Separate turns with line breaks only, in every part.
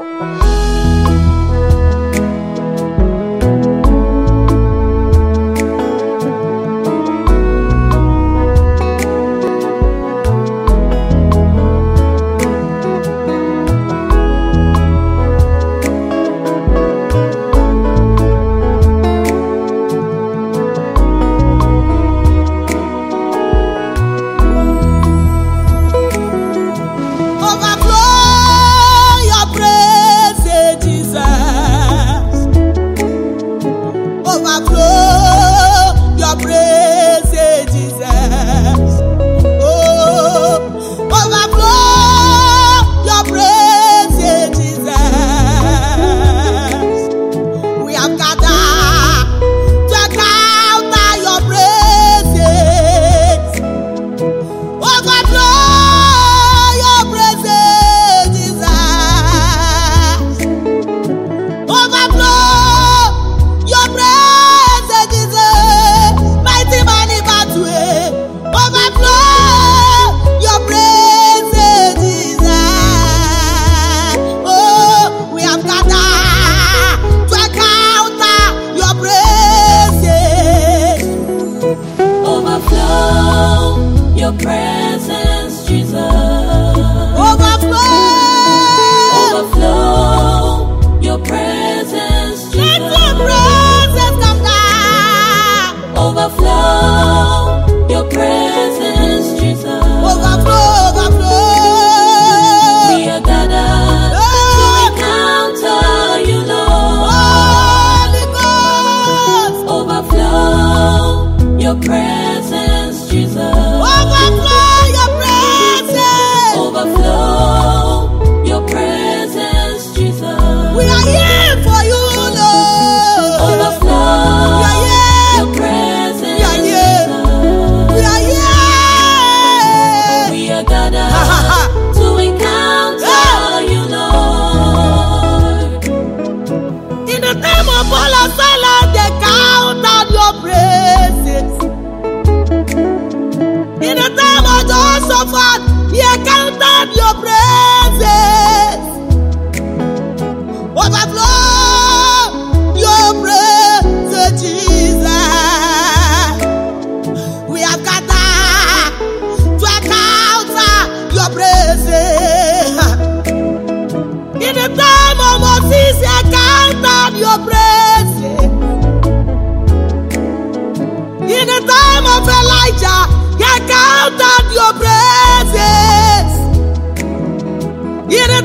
Música y eres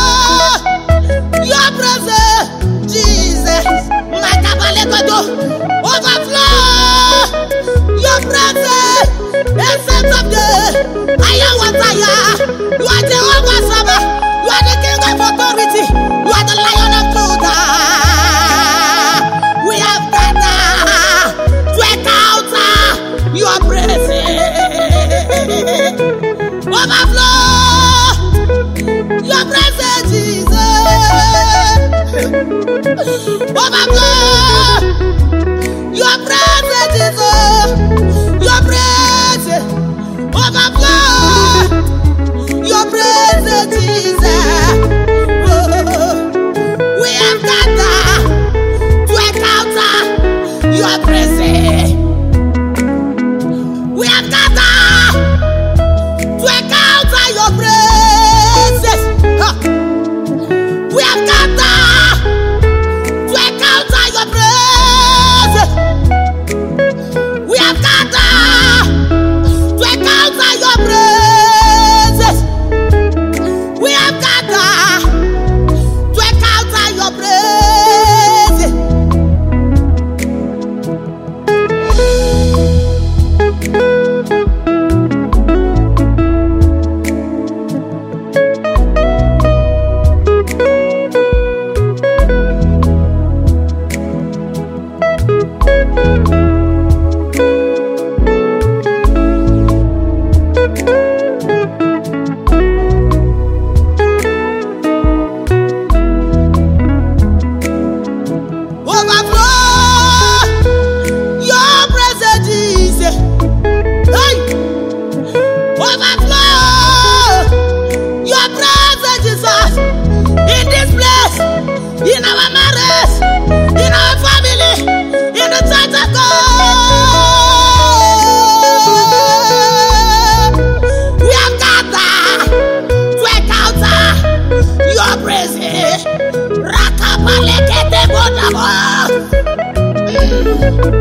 presence.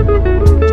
Música